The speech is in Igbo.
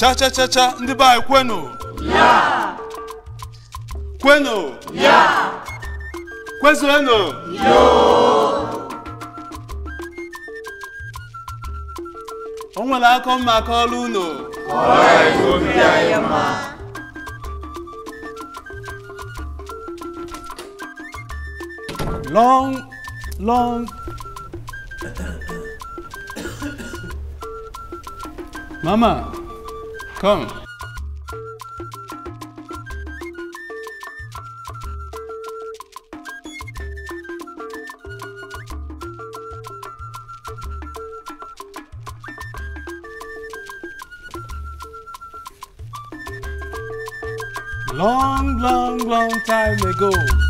cha cha cha ndị be anyị kwenu ya kwenu ya kwezuenu yo o nwere aka mma aka ọrụ unu long long mama Come. Long, long, long time ago.